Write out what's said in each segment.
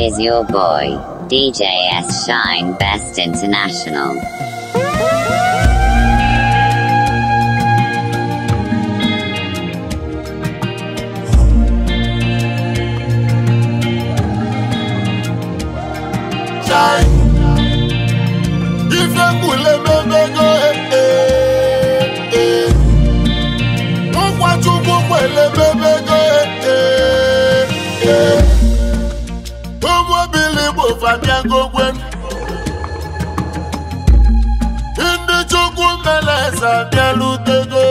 Is your boy, DJS Shine Best International. egogwe ndị chukwu meleze abịalutego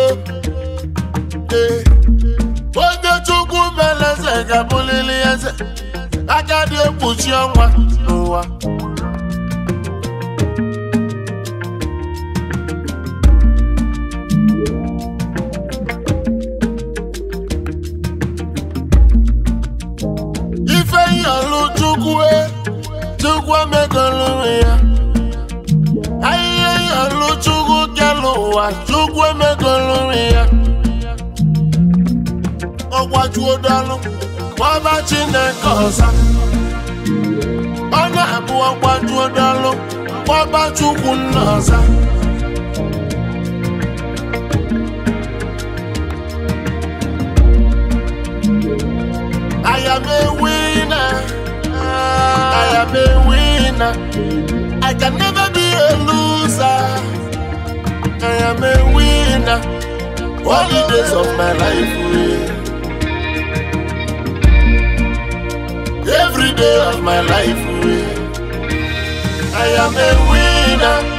eh, oge chukwu meleze ga-abụlili eze aka dị ekpuchi ọnwa n'ụwa egwu omegolu onwe ya ahịhịa ịhalụ chukwu kelụ ụwa chukwu emegolu onwe ya ọgwajuodalụ gbaba chineke ọza ọ na-abụ ọgwajuodalụ ọba chukwu nna ọza winner. I can never be a loser. I am a winner. All the days of my life, Every day of my life, I am a winner.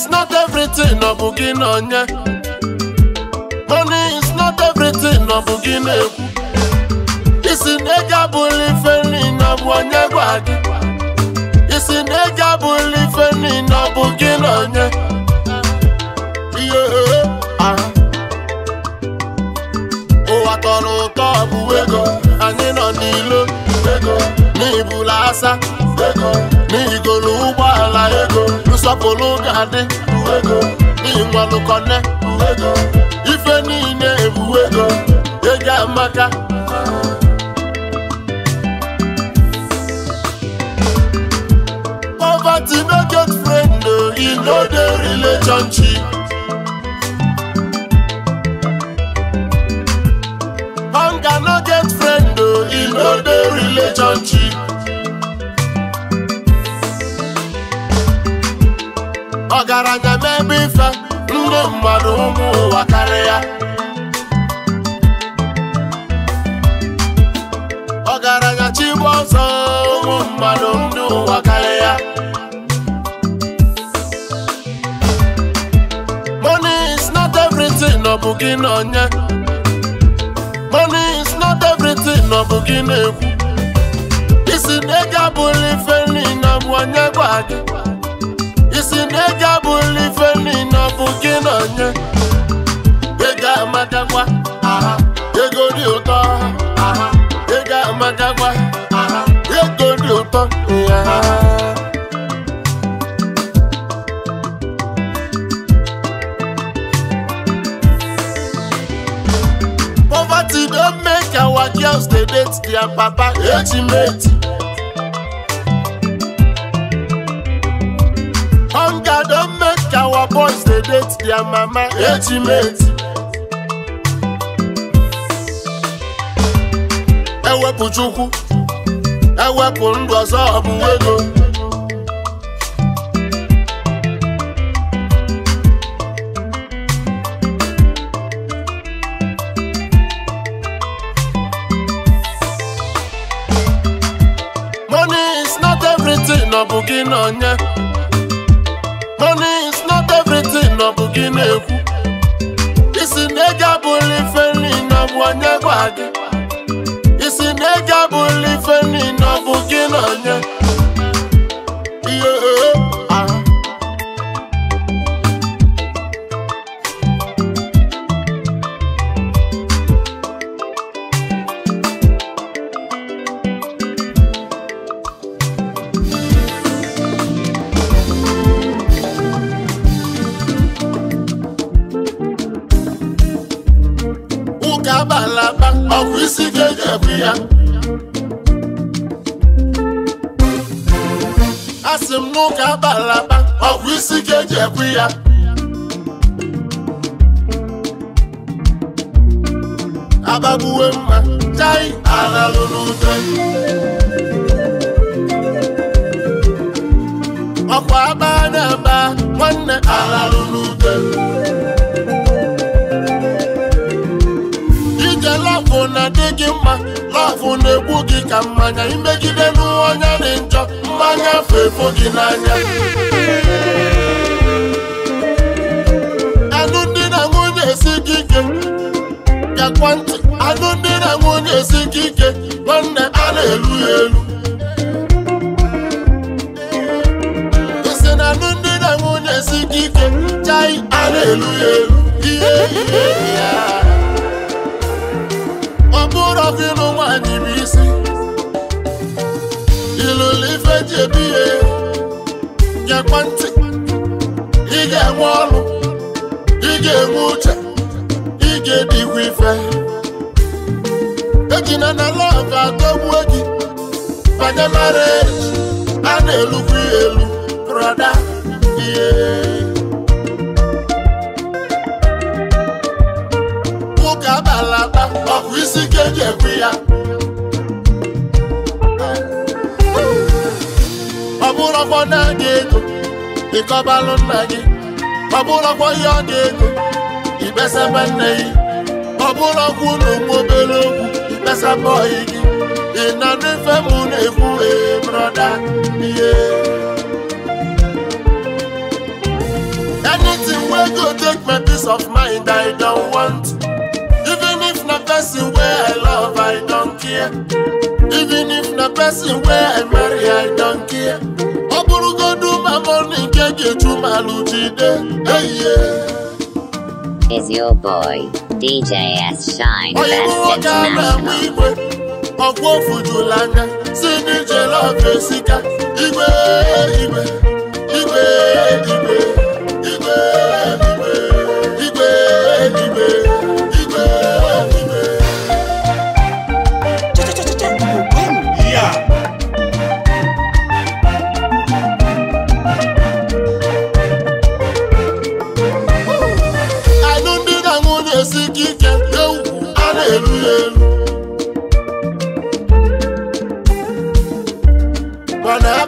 is not everything ọ bụ gị na money is not everything ọ bụ gị na-ekwu isi na ego abụla ife niile ọ bụ onye gwa gị isi na ego abụla ife niile ọ bụ gị na onye ihe ah. ụwa tọrọ ụtọ ọ bụ ego anyị nọ n'ilo ego n'ibula asa ego n'ihigo na ụgbọala ego nsọpụrụ ga-adị ego n'ihi nwanụkọne ego ife niile ebu ego ego amaka poverty no get friend o uh, e no dey relationship ọgaranya n'ebe ife ndị mmadụ ụmụ ụwa karịa ọgaranya chigbu ọsọ ụmụ mmadụ ndị ụwa karịa money is not everything no bụ gị na onye money is not everything ọ bụ gị na-ekwu isi na ego si n'ega bụlụ ife niile bụ gị na onye ego amadakwa ego dị ụtọ ego amadakwa ego dị ụtọ ya Poverty don't make our girls they date their papa, ultimate. date their mama age ewepụ chukwu ewepụ ndụ ọzọ ọ ego money is not everything ọ bụ gị na onye gwa gị isi na ego abụla ife niile ọ bụ gị na onye ọkụ isi ga-eji ebu ya asị m n'ụka abalị aba isi ga-eji ya abagbuwe mma chai ala lụrụ ute ọkwa aba na-aba nwanne ala gị mma lafụ na-egbu gị ka mmanya imegide n'ọnya dị njọ mmanya fefo gị n'anya alụmdi na nwunye esi gị ike ntị nwunye si gị ike nwanne a na-elu ya elu nwunye si gị ike chai a na-elu ya elu bụrụ ọgụlụ nwaanyị bụ isi ilụlụ ife ji ebi ihe nyekwa ntị ị ga-enwe ọlụ ị ga-enwe uche ị ga ife ejina na lọv atọgbuo gị banye mara e a na-elukwa ya elu ọba ló nna gị ọ bụrụkwa ihe ọ dị ego ikpesaba nne gị ọ bụrụkwa ụlọ ụmụ obere okwu ikpesaba ọyị gị ị na n'ife m na-ekwu ee brọda ihe anything wey go take my peace of mind i don want even if na person wey i love i don care even if na person wey i marry i don care Diamond Hey, yeah. Is your boy DJ S Shine best international? Ọkwọ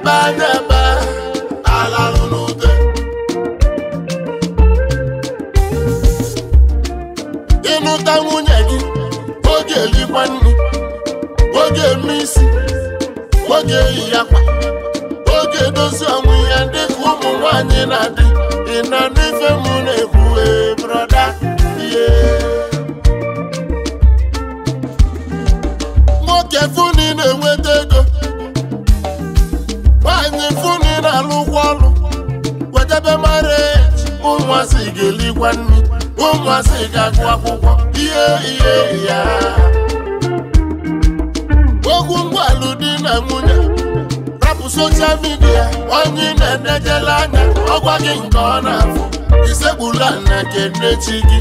abandon. te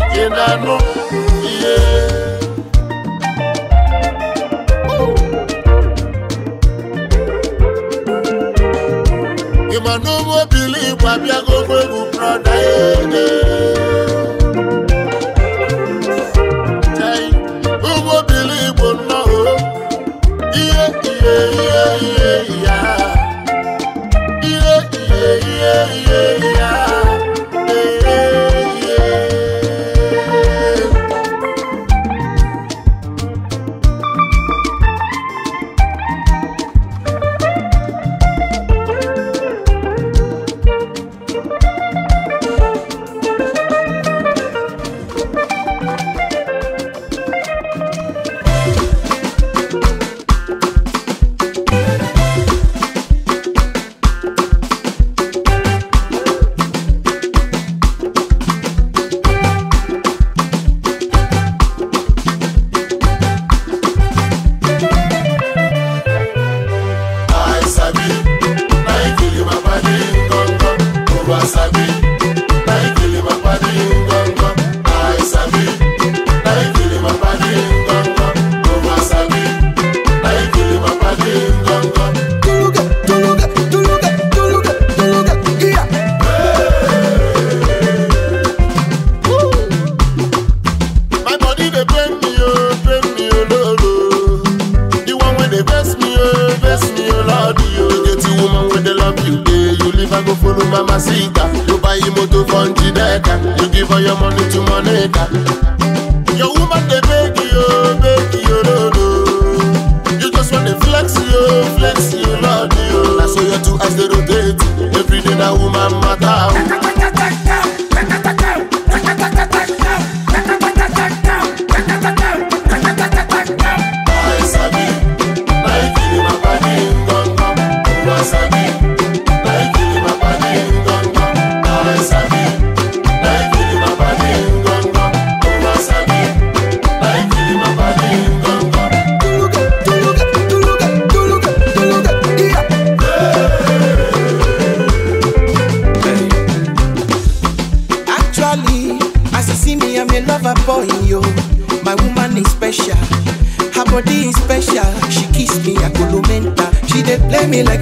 me like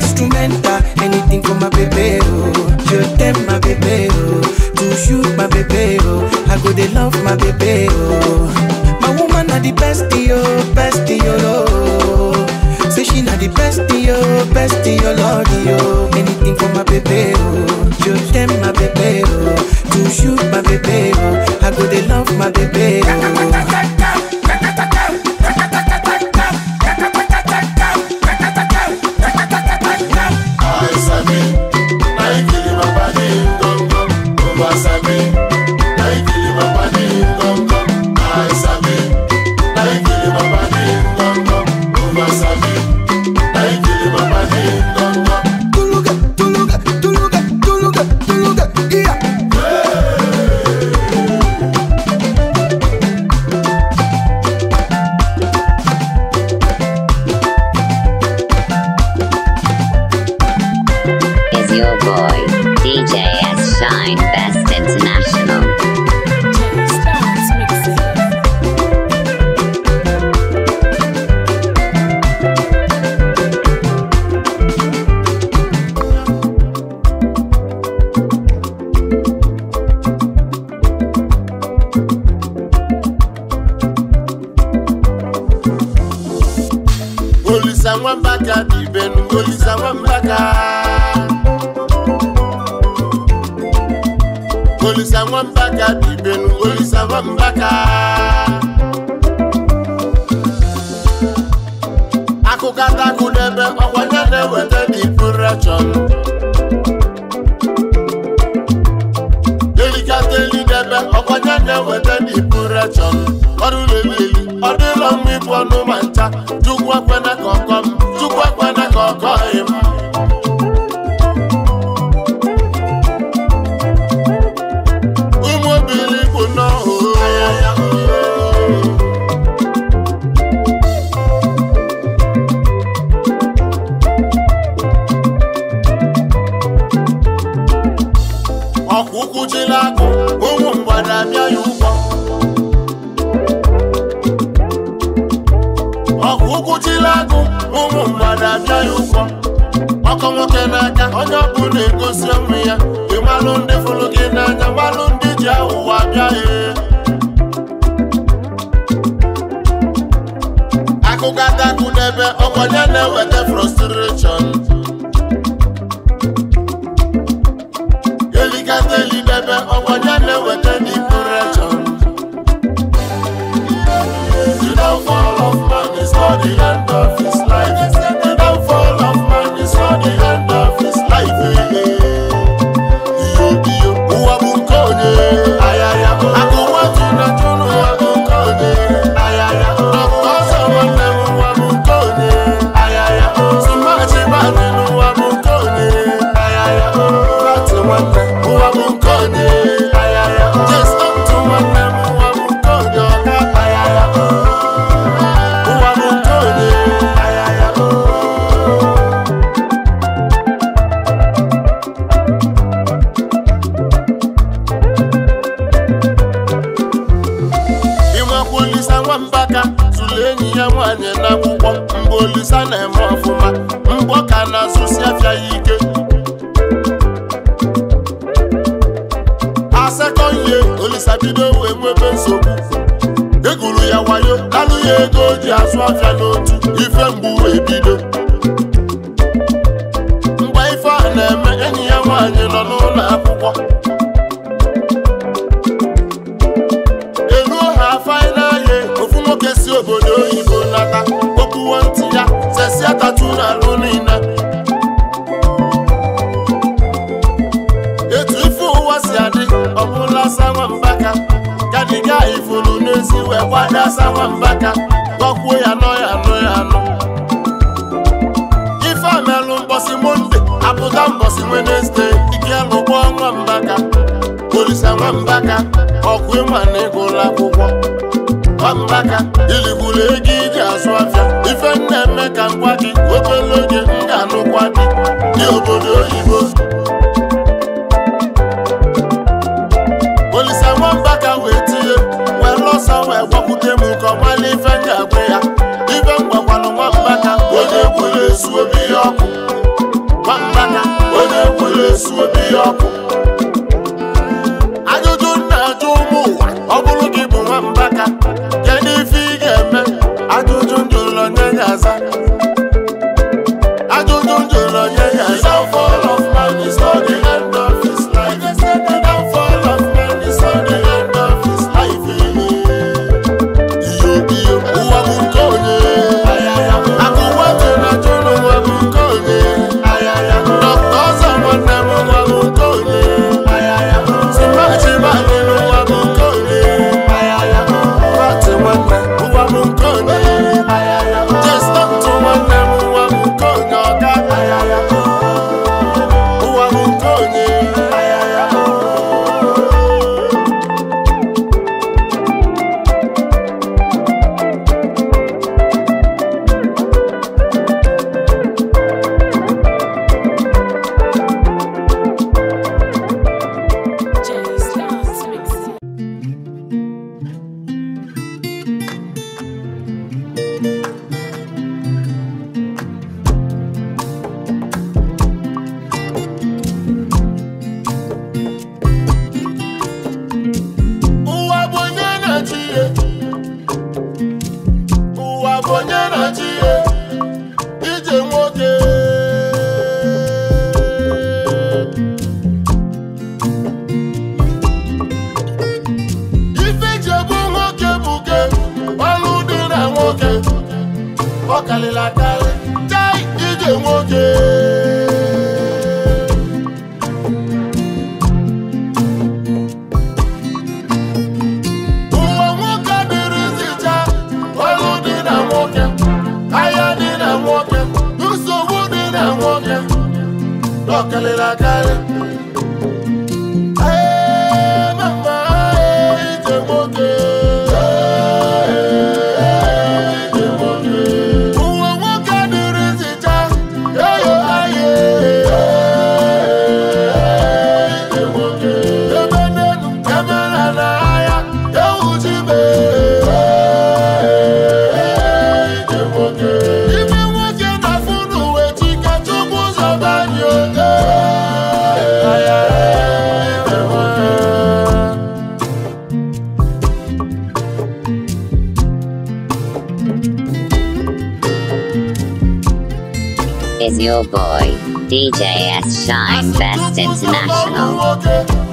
shine best. aja tatu n'alụ niile etu ife ụwa si adị ọbụla sawambaka kadiga ifuru n'ezi wee gbada sawambaka gọkwuo ya nọ ya nọ ya nọ ife amelụ mbọsị monde apụta mbọsị wenezde ike lụgbọ nwambaka olisa nwambaka ọkụ ịma na ịgụla akwụkwọ nwambaka iligwuru ego iji azụ afịa ife na-eme ka ngwa gị obere oge m ga-anụkwa gị dị obodo oyibo Olise nwamba ka wee tinye wee ọsọ wee gwakwute m nke ọmala ife m ga-agwa ya ife m gwakwanụ nwamba ka onye gwere esu obi ya ọkụ nwamba ka onye gwere ezu obi ihe ọkụ ajụjụ nna ajụ ụmụ ụwa ọ bụrụ gị bụ nwamba ka kedu ife ị ga-eme Gaza. boy, DJ S Shine Best International.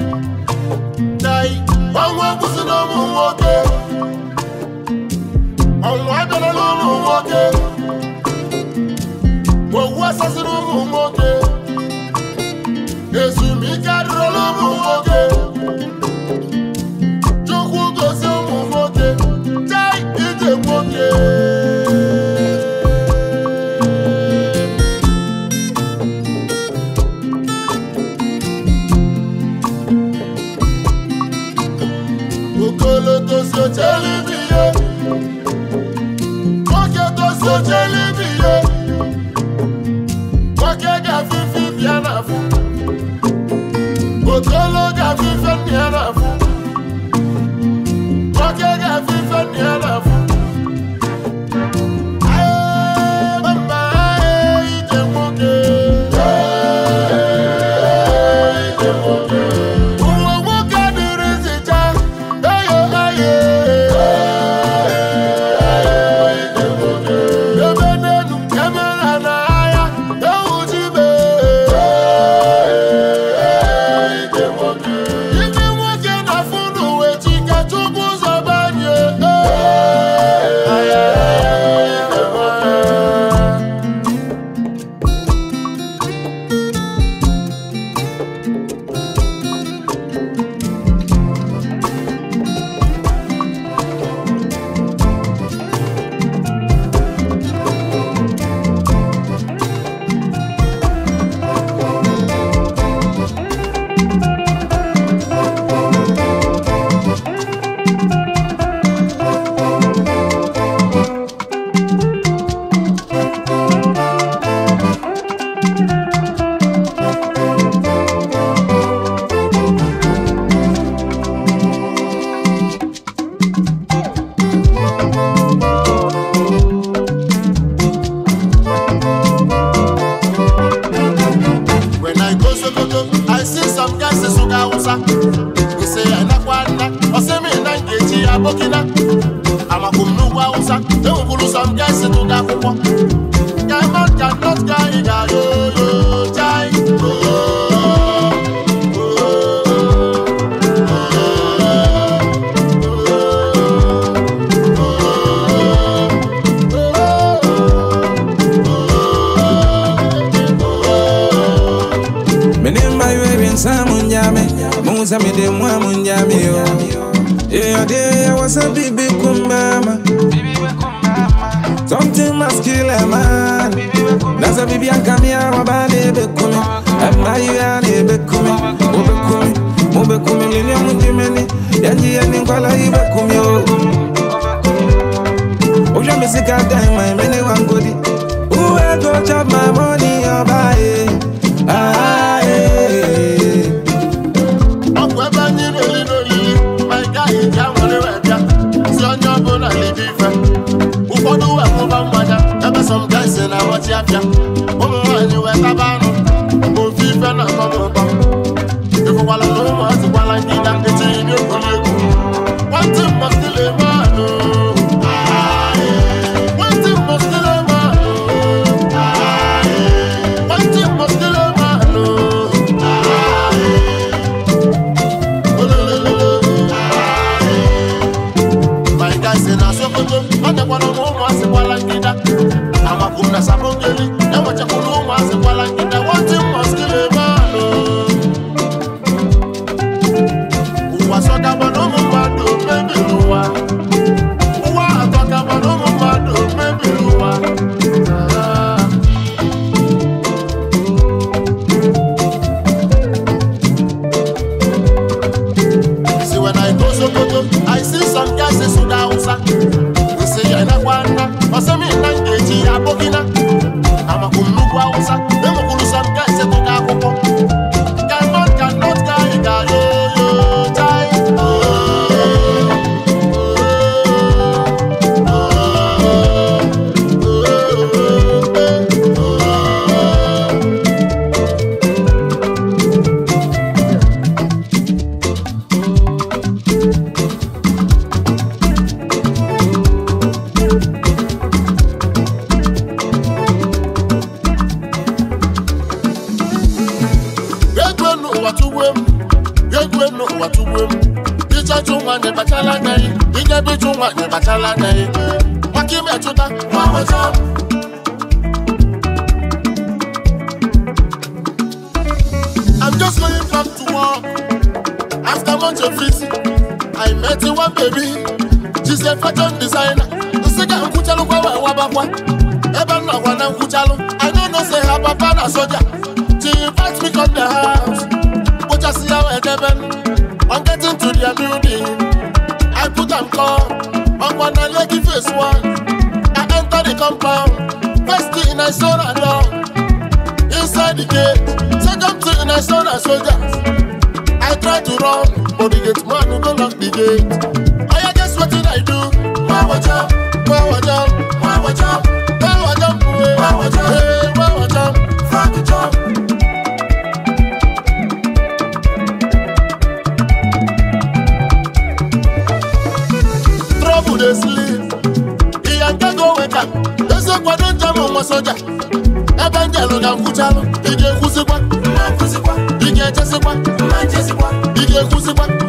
burkina amakuru n'ugwu awụsa enwekwuru sọ ndị esi n'ụdọ akwụkwọ diamond and not guy ga-aga oyo chai oyo Menimba yuwe bin samu nyame Musa mide mwa yo your day, I was a baby kumbama. Something must kill a man. That's a baby, I come here, my body become. I'm my yard, become. Ubekumi, ubekumi, lili mundimeni. Yanji yani nkwala ibekumi oh. yo. Oja misika time, my mene wangodi. Uwe go chop my money, your body. Ah. ah. some guys in a watch ya fia. Mumu wani we kabano. Mumu fife na mumu ba. Iko wala mumu ati wala ngida iti inyo kolegu. Wanti mustile you Wanti mustile mano. Wanti mustile mano. My guys in a sokoto. Ate wala mumu asi nessa ponte I met you one baby. She said, fashion designer. The second Kuchalu Kawa Wabakwa. Ever now when I'm Kuchalu. I know no say her papa na soldier. She invites me come the house. But I see how I heaven. I'm getting to the building. I put on call. I'm gonna let you face one. I enter the compound. First thing I saw that door. Inside the gate. Second thing I saw that soldiers. I tried to run for the gate, man who go lock the gate. I oh, guess what did I do? Power jump, power jump, power jump, power jump, power jump, hey, power jump, fuck the jump. Trouble dey sleep, he ain't go wake up. There's a quadrant jam on my soldier. Ebe ń jẹ̀rù ga ń kú jálù, ìjẹ̀kú sí 胡思乱。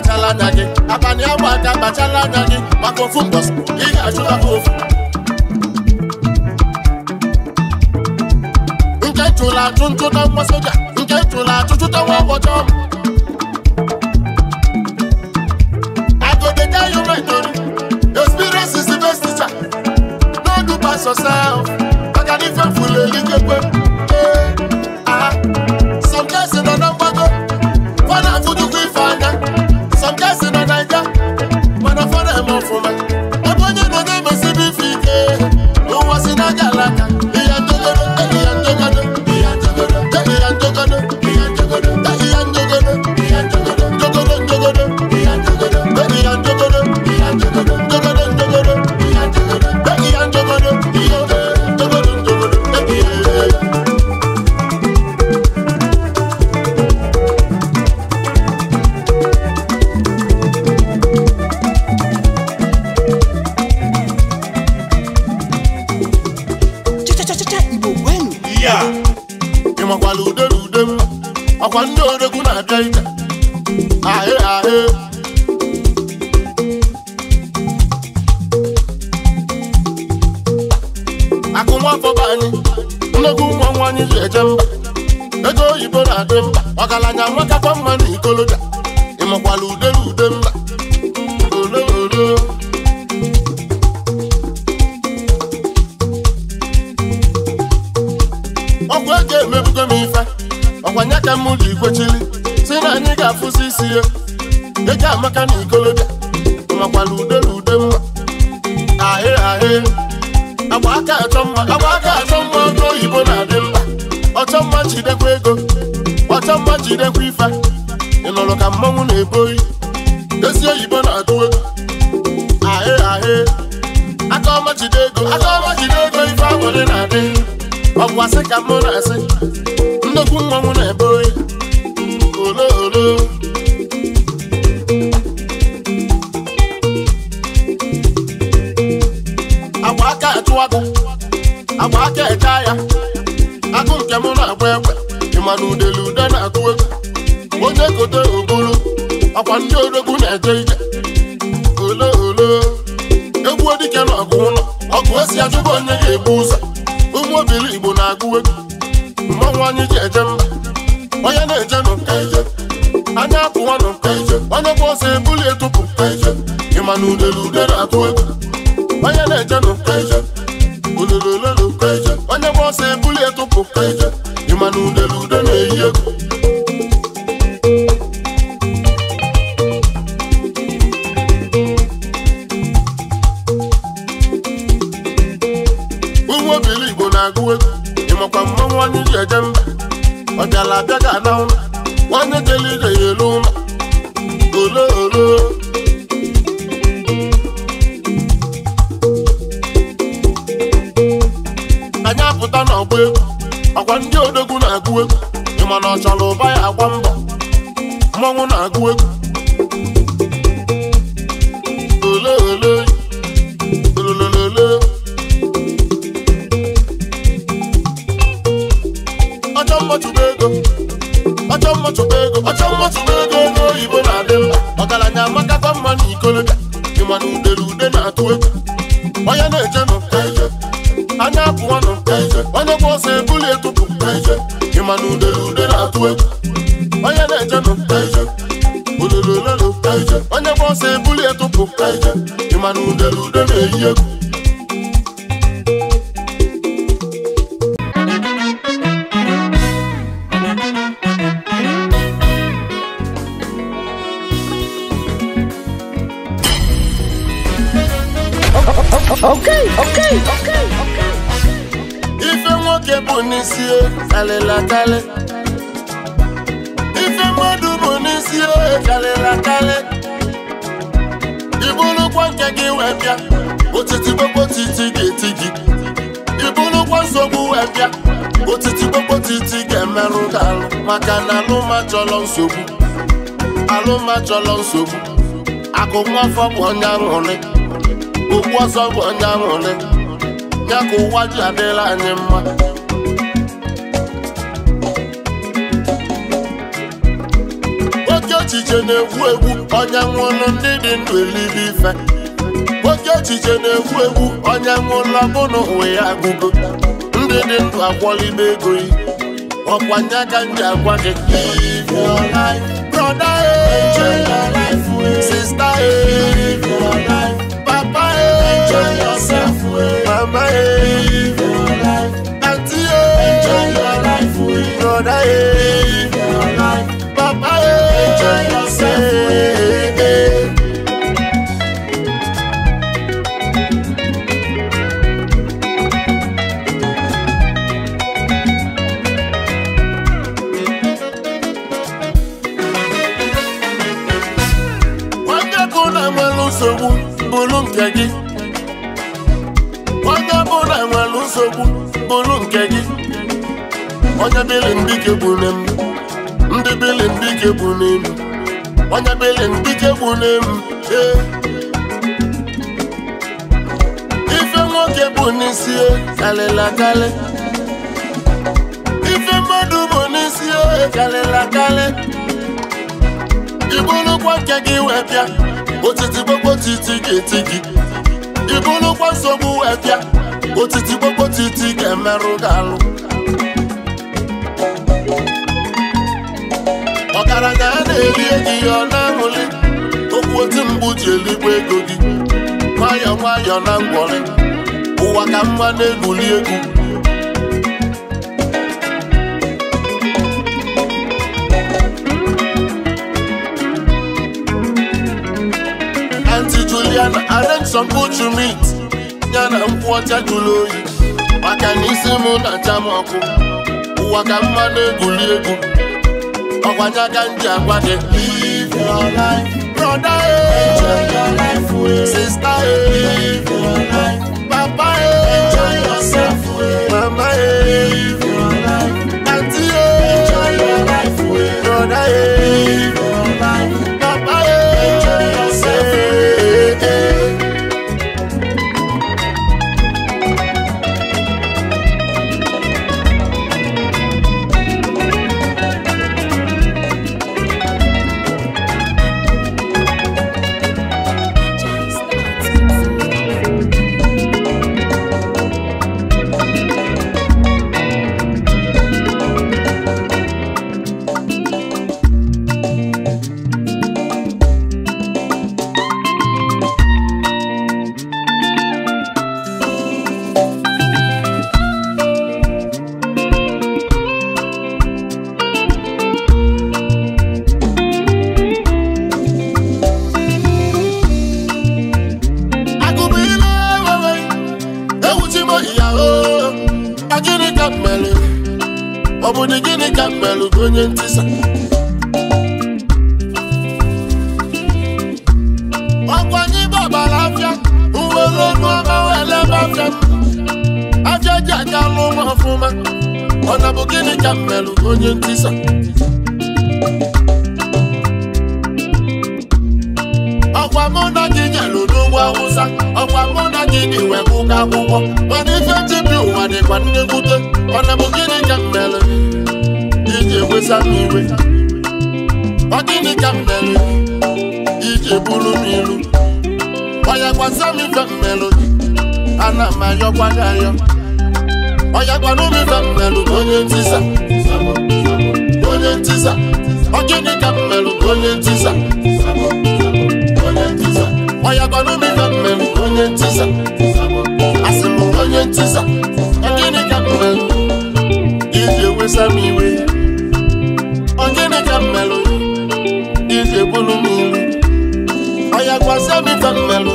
kpachala anya gị abalị agba aka anya gị maka ofu ị ga nke chụrụ achụ ntụta nwa nke chụrụ achụ chụta nwa ọgbọjọ agogede you right ori experience no maka n'ife ya ị makwala ude na ude m ọkwa ndị odogwu na-abịa ije ahị ahị akụnwafọ be anyị nnukwu ụmụ nwa anyị ji eje mba ego oyibo na-adị mba ọgaranya nwatakwa mma na ikoloja ị makwala ude na mba ike m ji kwechiri si na anyị ga-afụsi isi ya eji amaka na ikolobịa makwala ude na ude mma ahị ahị agba aka achọ mma agba aka achọ mma ọjọ oyibo na-adị mma ọchọ mma jidekwa ego ọchọ mma jidekwa ife ị ka mmanwụ na-ebo oyi ezi oyibo na-atụ ego ahị ahị aka ọma jide ego aka ọma jide ego ife agbụrị na-adị ọgwụ asị ka mụ na-asị ifu mmanwụ na-ebe oyi olo olo agba aka echụwata agba aka echa ya agụ nke m na-agba ekwe ịma na udele ude na-atụ egwu onye kote obolo akwa ndị odogwu na-eje olo olo egwuo dike na ọgụ ụlọ ọgụ esi achụba onye ga-ebu ụzọ ụmụ obili igbo ọnụ anyị ji eje onye na-eje nụ nke anya apụwanụ nke eje onye bụ ọsọ ebuli etupụ nke ịma na udele udele atụ egwu onye na-eje nụ nke eje ulele onye ọsọ ebuli etupụ nke ịma na udele ude na-eyi egwu akali ife mmadụ bụ n'isi karịrị akarị ibụrụkwa nke gị wee bịa otiti kpokpotiti ga-eti gị ibụrụkwa nsogbu wee bịa otiti kpokpotiti ga-emerụ gị alụ maka na alụma chọrọ nsogbu alụma chọrọ nsogbu akụ afọ bụ onye aṅụrị okwu ọzọ bụ onye aṅụrị ya ka ụwa ji adịla anyị mma echiche na-egwu egwu onye nwụrụ ndị dị ndụ ife oke echiche na-egwu egwu onye nwụrụ bụna ụwa ya agụgo ndị dị ndụ akwọlibe ego yi ọkwanye ka m agwa gị nsogbu bụrụ nke gị onye bụla nwere nsogbu bụrụ nke gị onye dịrị mbike bụ ne m dike bụ n'elu onye belen dike bụ n'elu ife nwoke bụ n'isi e, karịla karị ife mmadụ bụ n'isi e, karịla karị ibụrụkwa nke gị wee bịa otiti gbogotiti ga-eti gị nsogbu wee bịa otiti gbogotiti ga-emerụ alụ ọbara na a na-eri eji ya ọ na-ahụli okwu otu mbụ ji eligbo ego gị nwayọọ nwayọọ na ngwọrị ụwa ka mma na-egwuli egwu Auntie Juliana arrange some good to meet ya na nkwụ ọcha jụrụ oyi maka na isi m na-acha m ọkụ ụwa ka mma na-egwuli egwu ọgwanya ganja agwa gị live your life brother eh. enjoy your life sister live your life oh. eh. mana ife jibi ụwa dịkwa ndị mwute ọna bụ gịnị ka m mere iji wesa m iwe ọ gịnị ka m mere iji bụrụ m ilu ọya gbasa m ife m ana m ayọkwa gị ayọ ọya gwana m ife m mere onye ntisa onye ntisa ọ gịnị ka m mere onye ntisa onye ọya gwana m ife m onye ntisa onye ntisa gịnị ka m iji ewesa m iwe gịnị ka m iji egbulu m ilu ọya gwazia m ife m ya nwayọ welụ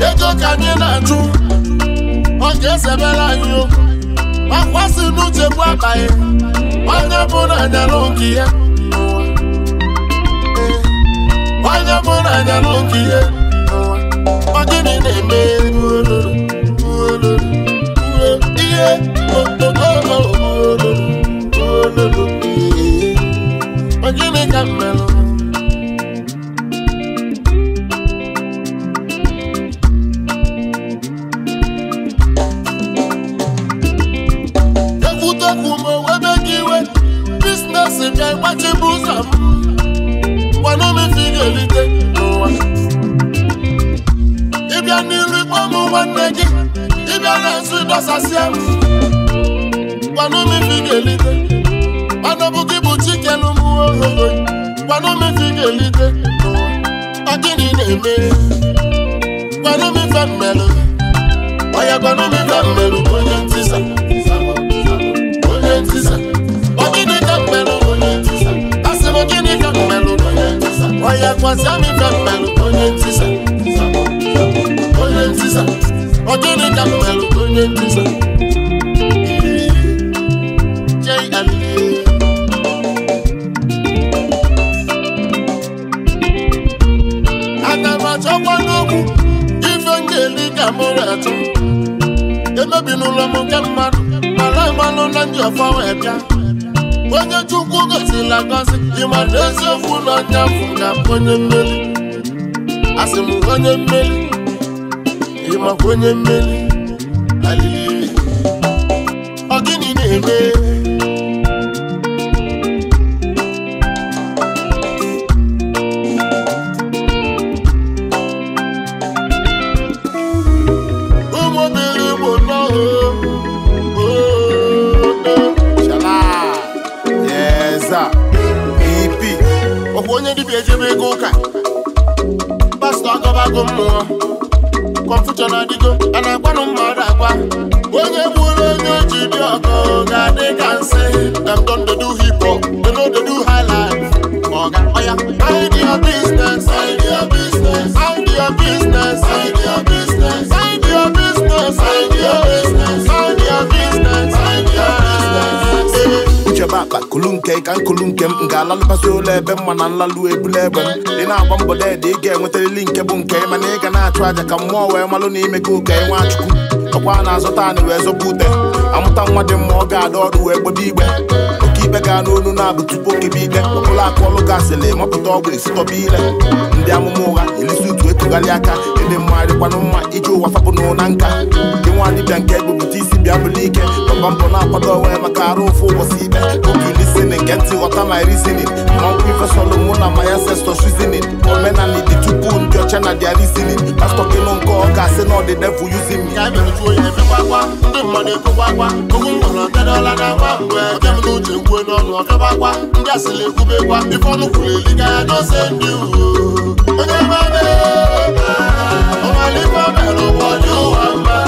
ya ego ka anyị na-ajụ ọ ga-ezebere anyị okwu gbasi n'uche bụ abaghị onye bụ na-anyalụ nke ya onye bụ na-anyalụ nke ya ọdịnị na-eme ihe ogịnị ka mmerụ nkefu ma owebe gị iwe ụzọ m ị n'ụwa ịbịa n'iru nwanne gị ịbịa na-azụ ịdọsasịa m ị ga gị bụ chikelu m ohoro ị ga n'ụwa ọ gịnị na-eme gwanụmefe mmerụ onye ọya kwasịa m ife onye ntisa onye ntisa ọ onye ntisa aga m ife emebi n'ụlọ m nke mmadụ mara mmanụ na ndị ọfọ wee bịa onye chukwu gọzila gọzi ịmara eziokwu na ọnya na onye mmeri asị m onye mmeri ịmakwa onye mmeri alili ọ gịnị na-eme agụ mmụọ kọnfushọn adịgo a na-agwanụ mmadụ agwa onye gburu onye oji dị ọkụ ga-adị ka nsị dem don dey do hip hop they know dey do high life ọga ọya mind business idea business idea business idea business idea business idea business mind business nchebe aka kulu nke ka nkulu nke m ga-alalụbasị ụlọ ebe mma na nlalụ ebula egbe m dị na-agba mbọ deede ị ga enwetarili nke bụ nke mana ị ga na-achụ aja ka mmụọ wee malụ na ime gị ụka nwachukwu ọkwa a na-azụta anị wee zọba ute amụta nwa dị mma ọ ga-ada ọrụ wee gbebe igbe ikpe gaa n'onu na-abụ tupu okebe ikpe ọbụla aka ọlụ gasịla ịmapụta ọgwụ esitọba ile ndị amụma ụgha elisi utu etugharị aka ịdị mma dịkwanụ mma iji ụwa fapụ n'ụna nka gị nwa dịbịa nke egbebute bịa bụlụ ike nọmba mbụ na-akwado onwe ya maka arụ ụfụ ụbọchị ikpe otu lisinin nke ntị ghọta my reasoning mmankwụ ifesọlụ mụ na my ancestors reasoning omenala dị tupu ndị ọcha na dia reasoning pastọ kịnụ nke ọ ga-asị na ọ dị devil using me ndị mmadụ ekwukwakwa ogu nwere ọkadala na-agba mgbe ọbịa m n'uche kwue n'ọnụ ọkabakwa ndị asịrị ekwubekwa ife ọnụ kwuru eliga ya n'ose ndị uwe onye mmadụ ọmalịkwa mere ụwa dị ụwa mma